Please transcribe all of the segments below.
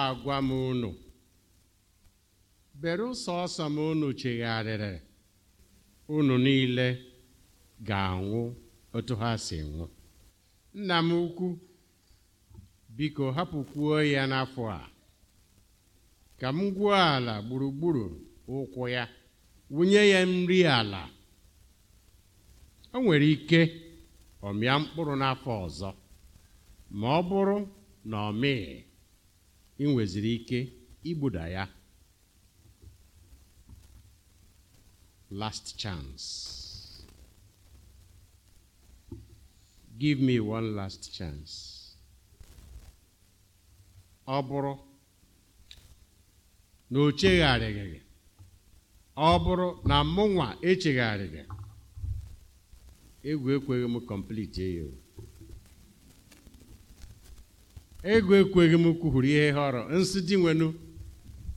agwa m unu bere sọsọ m unu chegharịrị unu niile ga-anwụ otu ha si nwụ nna m ukwu biko hapụkwuo ya n'afọ a ka m gwuo ala gburugburu ụkwụ ya wụnye ya nri ala o nwere ike ọmịa mkpụrụ n'afọ ọzọ ma ọ bụrụ na ọ mee. ị nweziri ike igbuda ya last chance give me one last chance ọ bụrụ na o chegharịghị gị ọ bụrụ na mụnwa echegharịghị egwu ekweghị m complete eyo. ego ekweghị m kwuhuru ihe họrọ nsị dị nwenu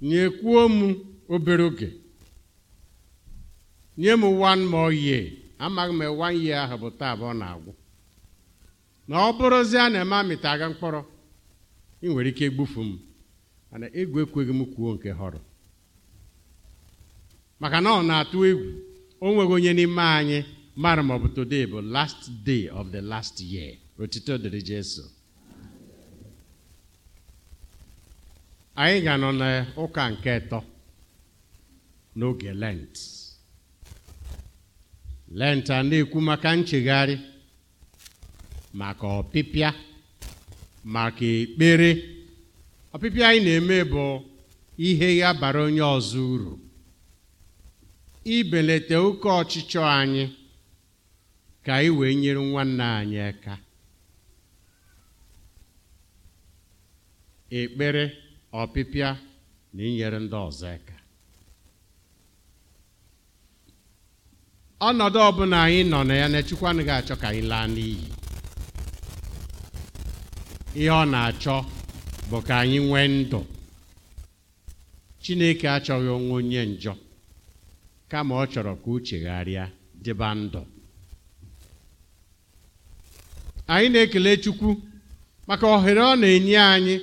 nyekwuo m obere oge nye m one more year amaghị m one year ahụ bụ taa bụ ọ na-agwụ na ọ bụrụzi a na-eme amịta aga mkpọrọ ị nwere ike egbufu m mana egwu ekweghị m kwuo nke họrọ maka na ọ na-atụ egwu o nweghị onye n'ime anyị mara ma bụ today bụ last day of the last year otito dịrị Jesu anyị ga nọ n'ụka nke ịtọ n'oge lent lent a na-ekwu maka nchegharị maka ọpịpịa maka ekpere ọpịpịa anyị na-eme bụ ihe ya bara onye ọzọ uru ibelata oke ọchịchọ anyị ka anyị wee nyere nwanne anyị aka ekpere ọpịpịa na inyere ndị ọzọ aka ọnọdụ ọbụla anyị nọ na ya na Chukwu anaghị achọ ka anyị laa n'iyi ihe ọ na-achọ bụ ka anyị nwee ndụ Chineke achọghị onwe onye njọ kama ọ chọrọ ka uche gharịa dịba ndụ anyị na-ekele Chukwu maka ohere ọ na-enye anyị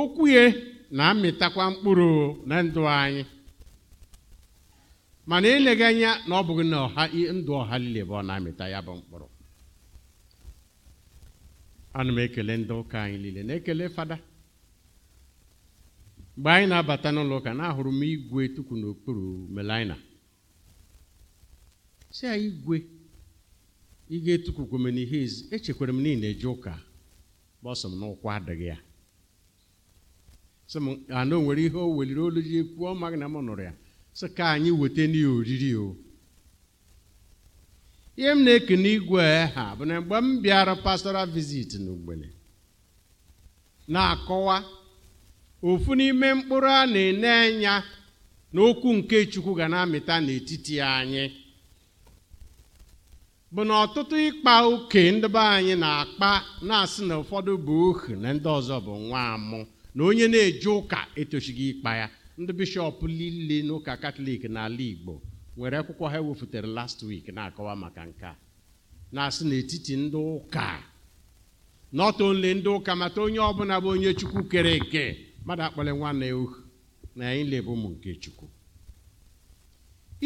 okwuye na-amịtakwa mkpụrụ na ndụ anyị mana eleghị anya na ọ bụghị na ndụ ọha niile bụ ọ na-amịta ya bụ mkpụrụ ana m ekele ndị ụka anyị niile na-ekele fada mgbe anyị na-abata n'ụlọ ụka na-ahụrụ m igwe tukwu n'okpuru melina si ya igwe ị ga-etukwukwome n'ihe echekwara m niile eje ụka gbọsọ m n'ụkwụ adịghị ya sị m nwere ihe o weliri olu ji kwuo ọ na m nụrụ ya sị ka anyị weta n'ihe oriri o ihe m na-eke n'igwe ha bụ na mgbe m bịara pastoral visit n'ugbene na-akọwa ofu n'ime mkpụrụ a na-ene anya na okwu nke chukwu ga na-amịta n'etiti anyị bụ na ọtụtụ ịkpa oke ndị be anyị na-akpa na-asị na ụfọdụ bụ ohu na ndị ọzọ bụ nwa amụ na onye na-eje ụka etochighị ịkpa ya ndị bishọp niile n'ụka katọlik n'ala igbo nwere akwụkwọ ha wefụtara last week na-akọwa maka nke na-asị n'etiti ndị ụka not only ndị ụka mata onye ọbụla bụ onye chukwu kere eke mmadụ akpọle nwanne ya uhu na anyị lebụ ụmụ nke chukwu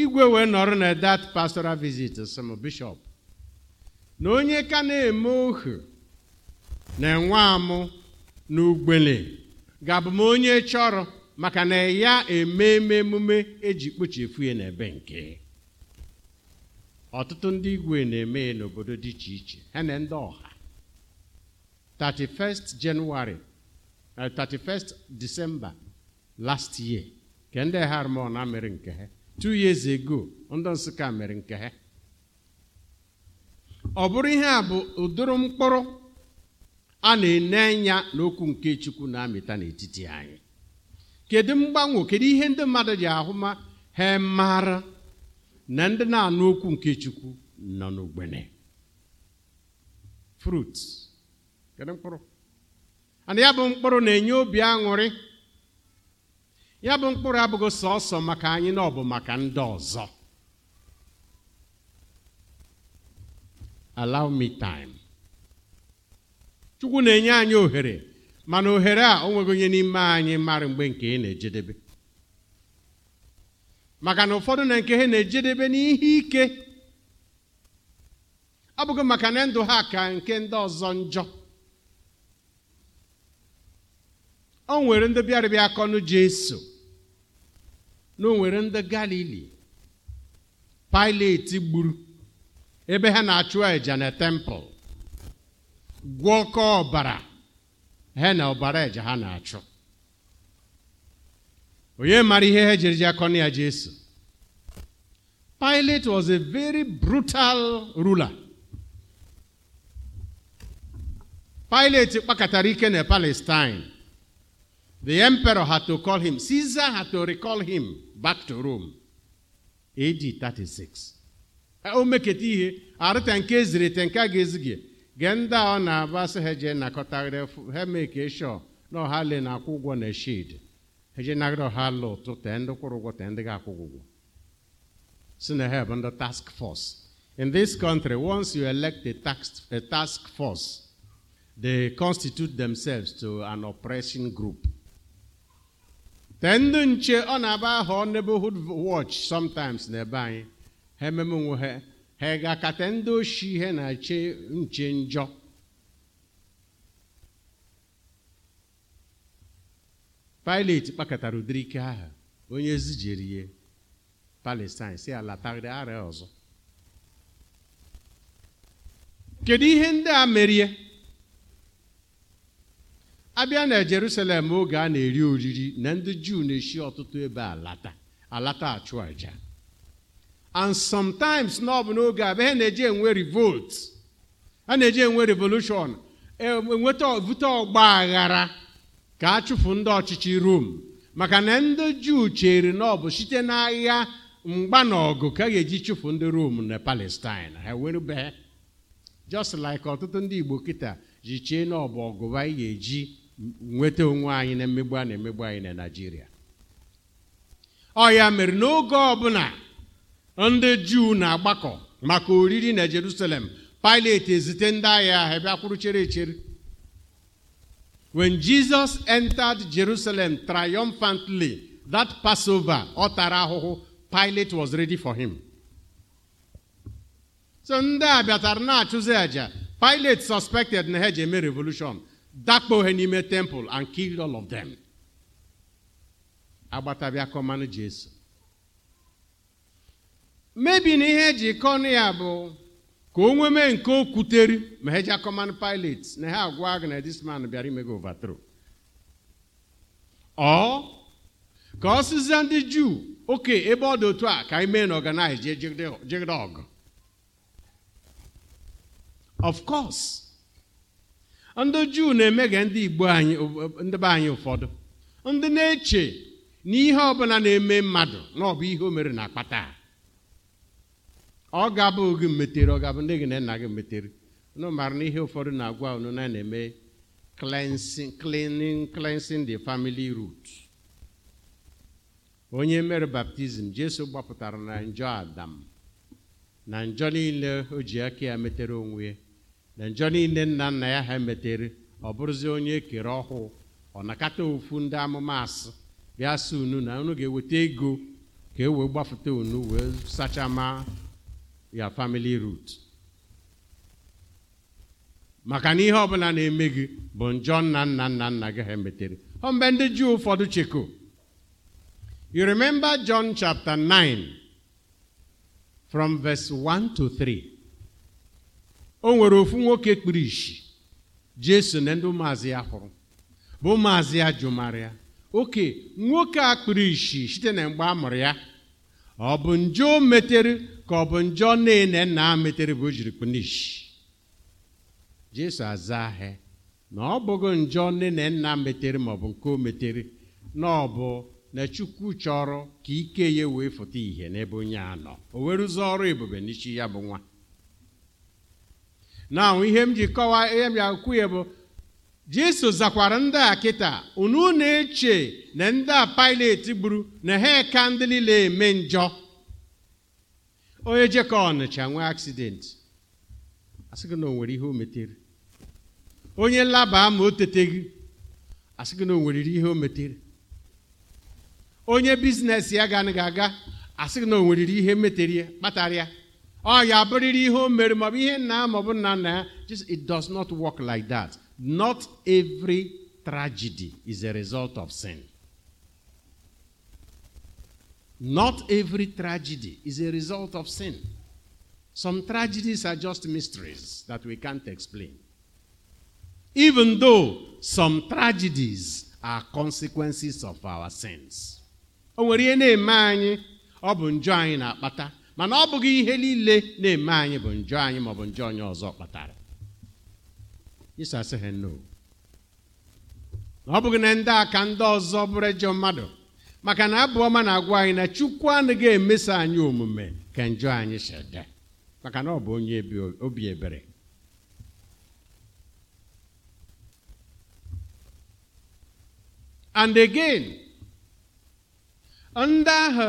igwe wee nọrọ na that pastoral visit sịm bishọp na onye ka na-eme ohu na enwe amụ na ugbele ga-abụ m onye chọrọ maka na ya eme emume eji kpochefu ya n'ebe nke ọtụtụ ndị igwe na-eme n'obodo dị iche iche ha na ndị ọha 31st January 31st eh, December last year ka ndị na mere nke ha two years ago ndị Nsụka mere nke ha ọ bụrụ ihe a bụ ụdịrị mkpụrụ a na-ene anya n'okwu nke chukwu na-amịta n'etiti anyị kedu mgbanwe kedu ihe ndị mmadụ ji ahụma ha mara na ndị na-anụ okwu nke chukwu nọ n'ogbene fruit kedu mkpụrụ ana ya bụ mkpụrụ na-enye obi aṅụrị ya bụ mkpụrụ abụghị sọsọ maka anyị na ọ bụ maka ndị ọzọ allow me time chukwu na-enye anyị ohere mana ohere a o onye n'ime anyị mara mgbe nke ị na-ejedebe maka na ụfọdụ na nke ha na-ejedebe n'ihe ike ọ bụghị maka na ndụ ha ka nke ndị ọzọ njọ o nwere ndị bịarịbịa akọnụ jeso na o nwere ndị galili Pilet gburu ebe ha na-achụ àjà na tempụl gwọkọ ọbara ha na ọbara eje ha na-achụ onye mara ihe ha jiri ji akọnụ ya jesu Pilate was a very brutal ruler Pilate kpakọtara ike na Palestine the emperor had to call him Caesar had to recall him back to Rome AD 36 o meketa ihe arịta nke eziri nke a ga-ezighị genda ọ na-aba sị ha jee nakọtagharị ha na ọha le na-akwụ ụgwọ na shid ha jee nagharị ọha ala ụtụ tee ndị kwụrụ ụgwọ tee ndị ụgwọ si na ha task force in this country once you elect a task, a task force they constitute themselves to an oppressing group tee ndị nche ọ na-aba neighborhood watch sometimes n'ebe anyị ha ememe onwe ha ha ga-akata ndị oshi ihe na-eche nche njọ Pilet kpakọtara ụdịrị ike ahụ onye zijirie ya Palestine si alatagharị arịa ọzọ kedu ihe ndị a merie abịa na Jerusalem oge a na-eri oriri na ndị Juu na-eshi ọtụtụ ebe alata alata achụ aja. and sometimes na ọ bụ n'oge a ihe na-eji enwe revolt a na-eji enwe revolushon e, enweta vute ọgba aghara ka a chụpụ ndị ọchịchị rom maka na ndị juu chere na ọ bụ site n'agha mgba na ọgụ ka ga-eji chụpụ ndị rom na palestine ha were just like ọtụtụ ndị igbo kịta ji chee na ọ bụ ọgụba anyị ga-eji nweta onwe anyị na emegbu a na-emegbu anyị na naijiria ọ ya mere n'oge ọbụla ndị juu na-agbakọ maka oriri na jerusalem pilate ezite ndị agha ahụ bịa kwuru chere echere when jesus entered jerusalem triumphantly that passover ọ tara ahụhụ pilate was ready for him so ndị a bịatara na-achụzi àjà pilate suspected na ha ji eme revolution dakpo ha n'ime temple and killed all of them agbata bịa kọmanụ jesu mebi na ihe eji kọnụ ya bụ ka o nwee mee nke okwuteri ma heja command pilot na ha agwa gị na this man bịara imego overthrow ọ ka ọ sịzie ndị juu oke ebe ọ dị otu a ka anyị mee na ọganaghị jee jegide ọgụ of course ndị juu na-emega ndị igbo anyị ndị be anyị ụfọdụ ndị na-eche na ihe ọbụla na-eme mmadụ na ọ bụ ihe o mere na akpata ọ gabụ gị metere ọ gabụ ndị gị na nna gị metere unu mara na ihe ụfọdụ na-agwa unu na na-eme cleansing cleaning cleansing the family root onye mere baptizim jesu gbapụtara na njọ adam na njọ niile o ji aka ya metere onwe ya na njọ niile nna nna ya ha metere ọ bụrụzi onye e kere ọhụụ ọ nakata ofu ndị amụma asị bịa sị unu na unu ga-eweta ego ka e wee gbapụta unu wee sachama your family root maka na ihe ọbụla na-eme gị bụ njọ nna nna nna nna gị ha metere ọ ndị juu ụfọdụ cheko you remember john chapter 9 from verse 1 to 3 o nwere ofu nwoke kpuru isi jesu na ndị ụmụazị ya hụrụ bụ ụmụazị ya jụmara oke nwoke a kpuru isi site na mgbe a mụrụ ya ọ bụ njọ o metere ka ọ bụ njọ nne na nna a metere bụ jiri kpunishi jesu azaa ahịa na ọ bụghị njọ nne na nna metere ma ọ bụ nke o metere na ọ bụ na chukwu chọrọ ka ike ya wee fụta ihe n'ebe onye a nọ o were ọrụ ebube n'isi ya bụ nwa na ihe m ji kọwaa ihe m ya kwu ya bụ Jesu zakwara ndị a kịta unu na-eche na ndị a Pilet gburu na ha ka ndị niile eme njọ onye jekọ Ọnịcha nwee aksidenti asị gị na o nwere ihe o metere onye laba ma o teteghị asị gị na o nwere ihe o metere onye bizinesi ya ga ganaghị aga asị gị na o nwere ihe metere kpatara ya ọ ya abụrịrị ihe o mere maọbụ ihe nna maọbụ nna nna ya just it does not work like that. Not every tragedy is a result of sin. Not every tragedy is a result of sin. Some tragedies are just mysteries that we can't explain. Even though some tragedies are consequences of our sins. O nwere ihe na-eme anyị ọ bụ njọ anyị na-akpata mana ọ bụghị ihe niile na-eme anyị bụ njọ anyị maọbụ njọ onye ọzọ kpatara Isa asịghị ọ bụghị na ndị a ka ndị ọzọ bụrụ ejọ mmadụ maka na abụọma na-agwa anyị na chukwu anaghị emeso anyị omume ka njọ anyị shede maka na ọ bụ onye obi ebere and again ndị ahụ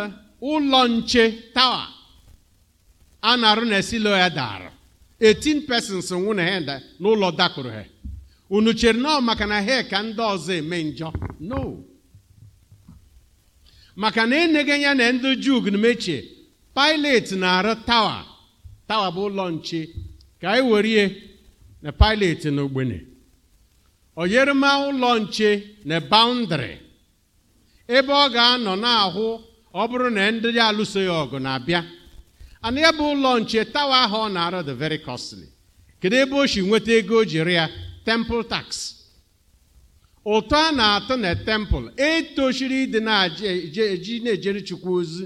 ụlọ nche tawa a na-arụ na esilo ya 18 persons nwụna ha n'ụlọ dakpụrụ ha unu chere nọọ maka na ha ka ndị ọzọ eme njọ no maka na enyeghị ya na ndị juu gnumechie pilet na-arụ tawa tawa bụ ụlọ nche ka anyị were ihe na pilet na ogbene oyerema ụlọ nche na baundri ebe ọ ga-anọ na-ahụ ọ bụrụ na ndị alụso ya ọgụ na-abịa and ebe ụlọ nche tawa ahụ ọ na-arụ the very costly kedu ebe o si nweta ego o jiri ya temple tax ụtọ a na-atụ na temple etochiri ịdị na-eji na-ejere chukwu ozi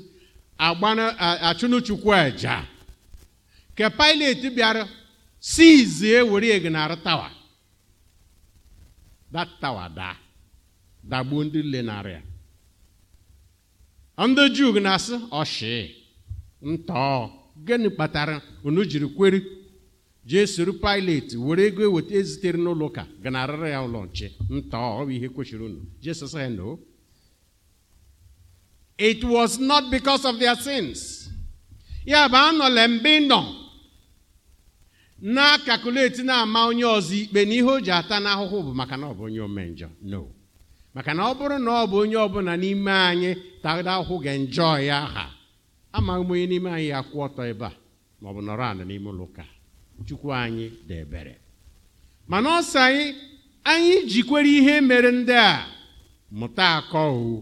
achụnụ chukwu aja ka Pilate bịara ewere were egnara tawa that tawa da dagbuo ndị lenarị ya ndị juu na-asị ọshị ntọọ gịnị kpatara unu jiri kweri jee soro pilet were ego eweta ezitere n'ụlọ ụka ganarịrị ya ụlọ nche ntọọ ọ bụ ihe kwesịrị unu Jesus said no it was not because of their sins ya bụ anọla mbe nọ na-akakuleti na-ama onye ọzọ ikpe na ihe o ji ata n'ahụhụ bụ maka na ọ bụ onye omenjọ no maka na ọ bụrụ na ọ bụ onye ọbụla n'ime anyị tada ahụhụ ga-enjọ ya aha amaghị m onye n'ime anyị ya kwụ ọtọ ebe a ma ọ bụ nọrọ n'ime ụlọ ụka chukwu anyị dị ebere mana ọ anyị anyị jikwere ihe mere ndị a mụta akọ owu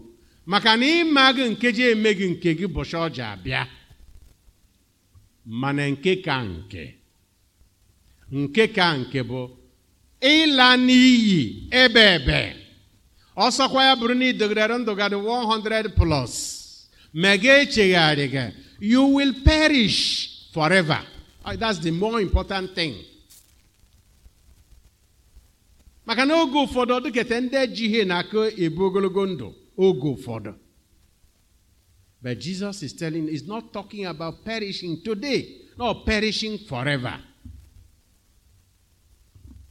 maka na ịma gị nkeji eme gị nke gị bụcha ọja abịa mana nke ka nke nke ka nke bụ ịla n'iyi ebe ebe ọsọkwa ya bụrụ na ndụ gadị 100 plus You will perish forever. Ah, that's the more important thing. maka na oge ụfọdụ ọdụketa ndị ji ihe na ebu ogologo ndụ oge ụfọdụ but jesus is telling is not talking about perishing today not perishing forever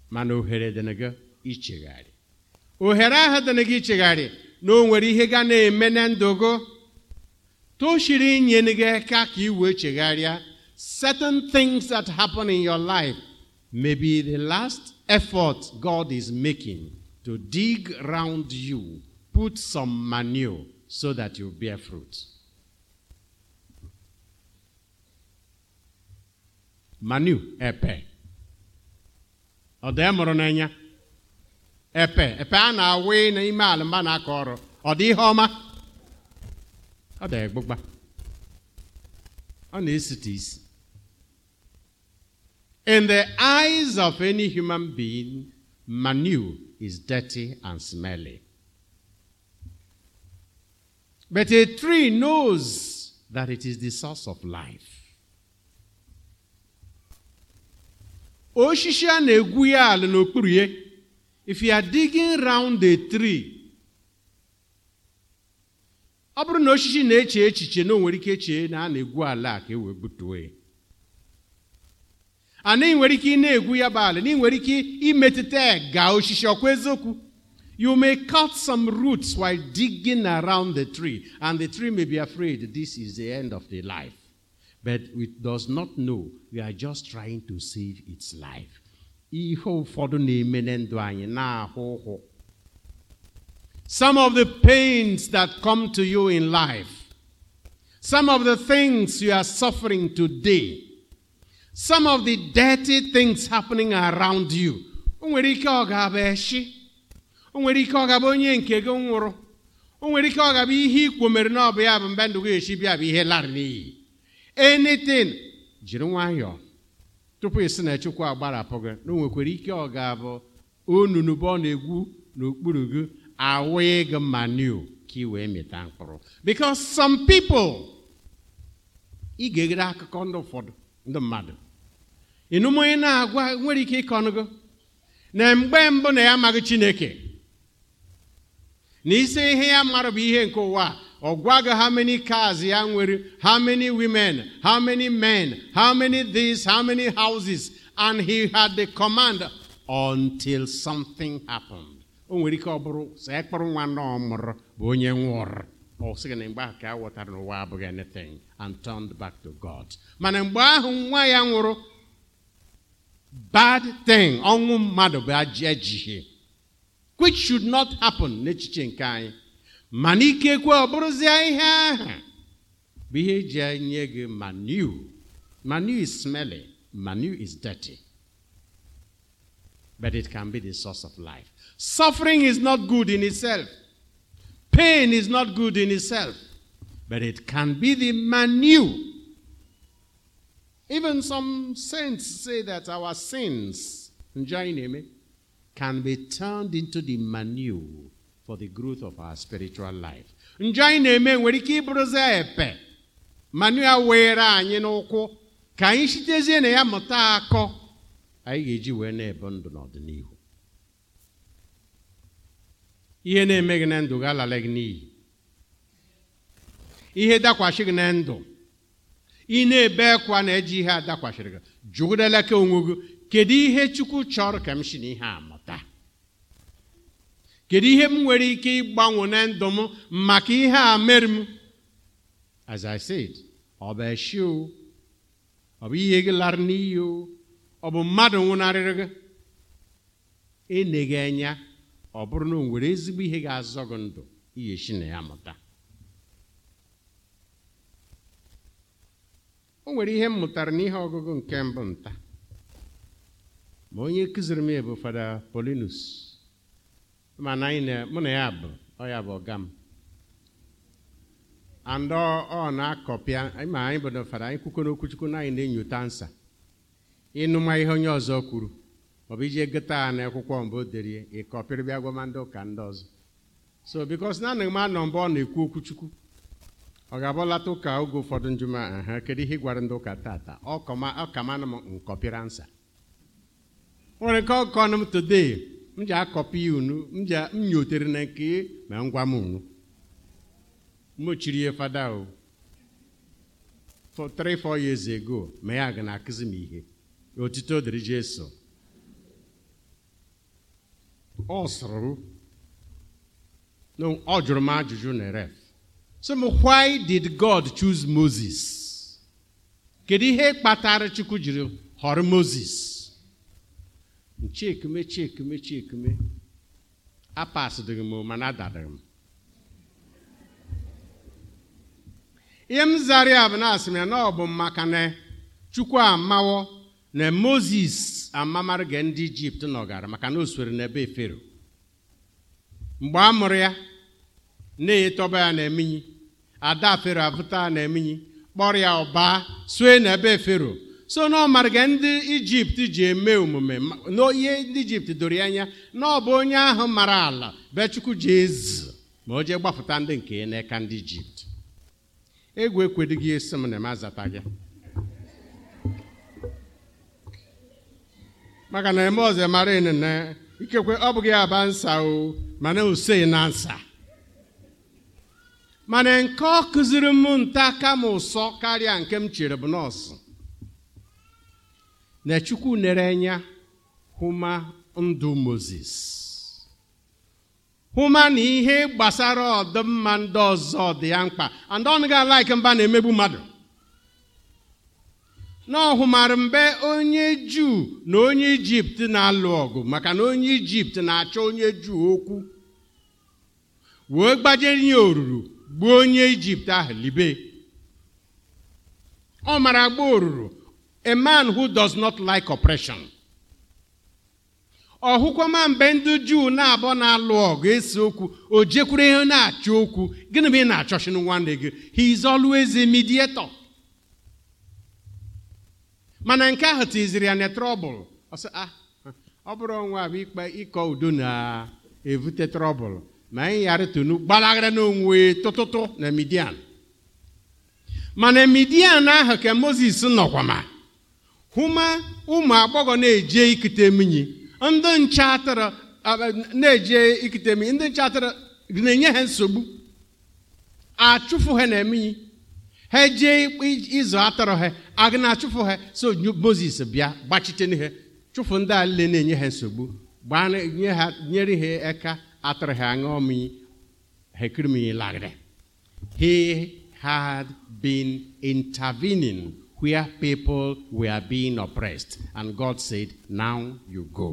mana ohere dịnị gị ichegharị ohere ahụ dịnị gị ichegharị na o nwere ihe ga na-eme na ndụ gị to inyere gị ka ka certain things that happen in your life may be the last effort God is making to dig round you, put some manure so that you bear fruit. Manure, epe. Ọ dị mụrụ n'anya? Epe, epe a na-awụ n'ime ala mba na-akọ ọrụ. Ọ dị ihe ọma? ada egbugba ọ isi in the eyes of any human being manure is dirty and smelly but a tree knows that it is the source of life osisi a na-egwu ya ala n'okpuru ya if you are digging round the tree ọ bụrụ na osisi na-eche echiche na o nwere ike chee na a na-egwu ala ka e wee butuo ana ị nwere ike ị na-egwu ya bụ ala na ị nwere ike imetụta osisi ọkwa eziokwu you may cut some roots while digging around the tree and the tree may be afraid this is the end of the life but it does not know we are just trying to save its life ihe ụfọdụ na-eme na ndụ anyị na-ahụ ụhụ some of the pains that come to you in life, some of the things you are suffering today, some of the dirty things happening around you. O nwere ike ọ ga-abụ eshi, o nwere ike ọ ga-abụ onye nke gị nwụrụ, nwere ike ọ ga-abụ ihe ikwo mere na ọ bụ ya bụ mgbe ndụ gị eshi bịa bụ ihe lara n'iyi. Anything, jiri nwayọọ tupu ị sị na Chukwu agbarapụ gị na o nwekwara ike ọ ga-abụ onunu bụ ọ na-egwu n'okpuru gị awee gị manure ka because some people ị ga-egide akụkọ ndị ụfọdụ onye na-agwa nwere ike ịkọnụgo na mgbe mbụ na ya amaghị chineke na isi ihe ya mmadụ bụ ihe nke ụwa ọ how many cars ya nwere how many women how many men how many this how many houses and he had the command until something happened o nwere ike ọ bụrụ sọ ya nwa nọ mụrụ bụ onye na mgbe ahụ ka a ghọtara n'ụwa abụghị anything and turned back to God mana mgbe ahụ nwa ya nwụrụ bad thing ọnwụ mmadụ bụ ejighi which should not happen n'echiche nke anyị mana ikekwe ọ bụrụzie ihe ahụ bụ ihe eji enye gị manu manu is smelly manu is dirty but it can be the source of life Suffering is not good in itself. Pain is not good in itself. But it can be the manu. Even some saints say that our sins, Njaineme, can be turned into the manu for the growth of our spiritual life. Njaineme nwere ike ịbụrụzi epe. Manu ya were anyị n'ụkwụ ka anyị sitezie na ya mụta akọ anyị ga-eji wee na-ebe ndụ n'ọdịnihu. ihe na-eme gị na ndụ ga-alala gị n'iyi ihe dakwasị gị na ndụ ị na-ebe na-eji ihe a dakwasịrị gị jụgidela ka onwe gị kedu ihe chukwu chọrọ ka m si n'ihe a mụta kedu ihe m nwere ike ịgbanwe na ndụ m maka ihe a mere m as i said ọ bụ eshi ọ bụ ihe gị lara n'iyi o ọ bụ mmadụ nwụnarịrị gị eneghị anya ọ bụrụ na o nwere ezigbo ihe ga-azọ gị ndụ shi na ya mụta o nwere ihe m mụtara n'ihe ọgụgụ nke mbụ nta ma onye kụziri m ya bụ fada polinus mana anyị mụ na ya bụ ya bụ ọga m and ọ na-akọpịa ma anyị bụ na fada anyị kwukwo n'okwuchukwu na anyị na enyota ansa ịnụma ihe onye ọzọ kwuru maọbụ ije gote ha n'akwụkwọ mbụ derie ịkọpịrị bịa gwama ndị ụka ndị ọzọ so bikos na anaghị m anọ mgbe ọ na-ekwu okwuchukwu ọ ga-abọlata ụka oge ụfọdụ njuma ha kedu ihe ị gwara ndị ụka tata ọ kamana m nkọpịra nsa nwere nke ọkọ m today m ji akọpị ya unu m ji nyotere na nke ma ngwa m unu mochiri ihe fada o for 3 4 years ago ma ya ga na-akụzi m ihe otito dịrị Jesu ọ sụrụ m na ọ ajụjụ na ref sị m why did God choose Moses kedu ihe kpatara Chukwu jiri họrọ Moses nchekeme chekeme chekeme apasịdịghị m mana adadịghị m ihe m zara ya bụ na asị m na ọ bụ maka na Chukwu amawo na moses amamarị ga ndị ijipt nọgara maka na o na n'ebe fero mgbe a mụrụ ya na-etọba ya na eminyi ada fero abụta na eminyi kpọrọ ya ọba sue n'ebe fero so na ọmarịga ndị ijipt ji eme omume n'ihe ndị ijipt doro ya anya na ọ bụ onye ahụ mara ala bechukwu ji ezi ma o jee gbapụta ndị nke ya n'aka ndị ijipt egwu ekwedughị esi m na m azata gị maka na eme ọzọ mara inene ikekwe ọ bụghị aba nsa o mana osei na nsa mana nke ọ kụziri m nta kama ụsọ karịa nke m chere bụ nọọsụ na chukwu nere anya hụma ndụ moses hụma na ihe gbasara ọdịmma ndị ọzọ dị ya mkpa andọnụ ga alaiki mba na-emegbu mmadụ na ọhụmara mgbe onye juu na onye ijipt na-alụ ọgụ maka na onye ijipt na-achọ onye juu okwu wee gbajere ya oruru gbuo onye ijipt ahụ libe ọ mara gba oruru a man who does not like oppression ọhụkwama mgbe ndị juu na-abọ na-alụ ọgụ esi okwu o jekwuru ihe na-achọ okwu gịnị bụ ị na-achọchinu nwanne gị he is always a mediator mana nke ahụ tiziri ya na trọbụl ah, ọ bụrụ onwe abụ ikpe ịkọ udo na-evute trọbụl ma anyị ghara tonu n'onwe tụtụtụ na midian mana midian ahụ ka moses nọkwa ma hụma ụmụ agbọghọ na-eje ikute mmiri ndị nche atụrụ na-eje ikute mmiri ndị nche atụrụ na-enye ha nsogbu achụfụ ha na eminyi ha jee ịzụ atọrọ ha aga na-achụfụ ha so moses bịa gbachite n'ihe chụfụ ndị a na-enye ha nsogbu gbanye ha nyere ha aka atọrọ ha aṅụ mmiri ha ekirimiyi lagịrị he had been intervening where people were being oppressed and god said now you go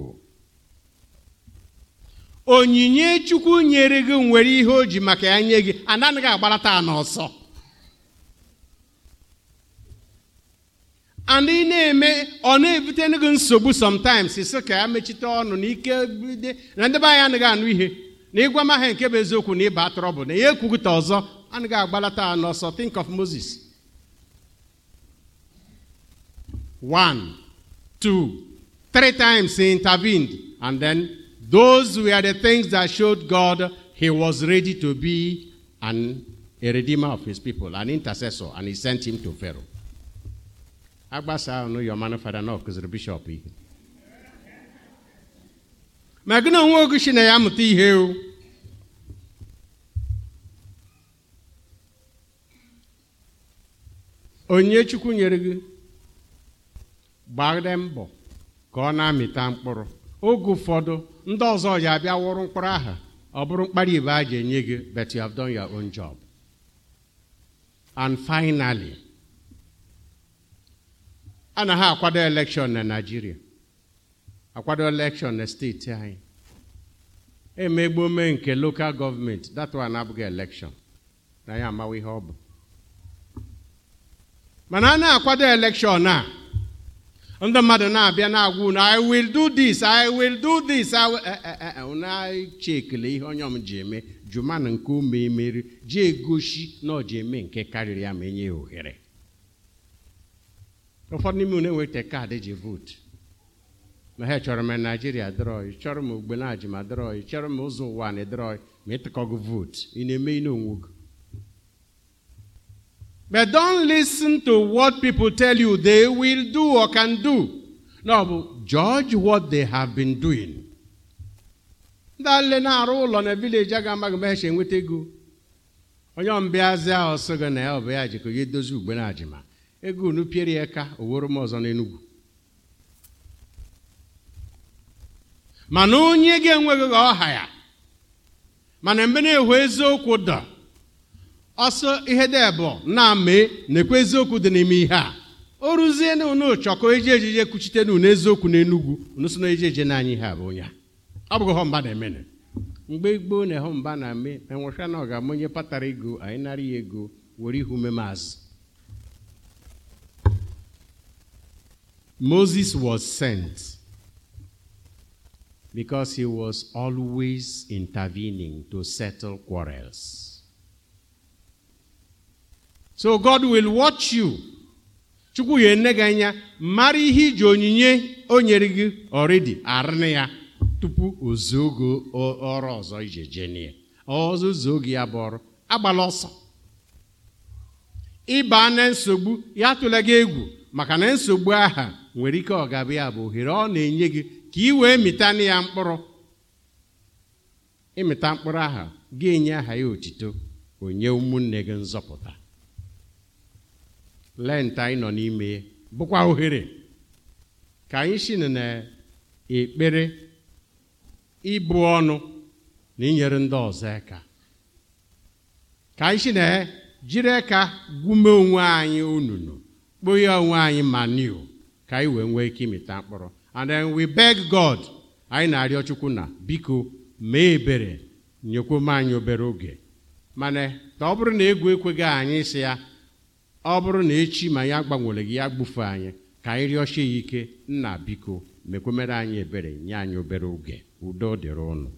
onyinye chukwu nyere gị nwere ihe o ji maka ya nye gị anaghị agbarata n'ọsọ and ị na-eme ọ na-ebutere gị nsogbu sometimes sị ka ya mechite ọnụ na ike na ndị be anyị anaghị anụ ihe na ịgwa m aha nke bụ eziokwu na ịba trọbụl na ya ekwughịta ọzọ anaghị agbalata ha n'ọsọ think of moses one two three times he intervened and then those were the things that showed god he was ready to be an, a redeemer of his people an intercessor and he sent him to pharaoh agbasa ọnụ yọmanụ fada na ọkụziri bishọp ihe ma gị na onwe na ya amụta ihe o onye chukwu nyere gị gbagide mbọ ka ọ na-amịta mkpụrụ oge ụfọdụ ndị ọzọ ya abịa wụrụ mkpụrụ aha ọ bụrụ mkpara a ga-enye gị but you have done your own job and finally A na ha akwado elekshọn na naijiria akwado elekshọn na steeti anyị e emegbome nke lokal gọọmenti datuwa na abụghị elekshọn na ya amawa ihe ọ bụ mana a na-akwado elekshọn a ndị mmadụ na-abịa na-agwa unu i will do this i will do this eh, eh, eh, na-eche ekele ihe onye ji eme jumana nke ume emeri ji egosi na ọ ji eme nke karịrị ya ma enye ya ohere ụfọdụ n'ime unu enweghị kaadị e ji vootu ma ha chọrọ m naijiria drọị chọrọ m ogbe na ajima drọị chọrọ m ụzọ ụwa na drọị ma ịtụkọgo vootu ị na-eme ihe onwego but don't ten to what people tell you they will do or can do no bụ judge what they have been doing ndị na-arụ ụlọ na vileji a ga-amaghị ma enweta ego onye ọmbịazi ahụ sị gị na ya ọ bụ ya jikọ ya edozi ugbe na ajima ego unu piere ya ka oworo m ọzọ n'enugwu mana onye ga-enweghị ọha ya mana mgbe na-ewu eziokwu dọ ọsọ ihe dị na mee na-ekwe eziokwu dị n'ime ihe a o ruzie na unu chọkọ eji ejije kwuchite na unu eziokwu n'enugwu unu so na eji eje n'anya ihe a bụ onye a ọ bụghị mba na-emene mgbe gboo na-ehụ mba na eme enwechana ọ ga-ama onye patara ego anyị nara ya ego were ihu ume maazị Moses was sent because he was always intervening to settle quarrels. So God will watch you. Chukwu ye ene gị anya mara ihe iji onyinye o nyere gị ọrịdị arịnị ya tupu ozuo oge ọrụ ọzọ ije jenie ọzọ zuo oge ya bụ ọrụ agbala ọsọ ịba na nsogbu ya atụla egwu maka na nsogbu aha nwere ike ọ bụ ohere ọ na-enye gị ka ị wee mịta na ya mkpụrụ ịmịta mkpụrụ aha gị enye aha ya otito onye ụmụnne gị nzọpụta lenta anyị nọ n'ime bụkwa ohere ka anyị si na ekpere ịbụ ọnụ na inyere ndị ọzọ aka ka anyị si na jiri aka gwume onwe anyị onunu kpụghe onwe anyị maniu ka anyị wee nwee ike imeta mkpụrụ and then we beg God anyị na-arịọ Chukwu na biko mee ebere nyekwom anyị obere oge mana ka ọ bụrụ na egwu ekweghị anyị sị ya ọ bụrụ na echi ma ya gbanwere gị ya gbufe anyị ka anyị rịọchie ya ike nna biko mekwemere anyị ebere nye anyị obere oge udo dịrị ụnụ